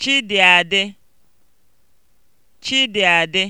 Chidịadị Chidịadị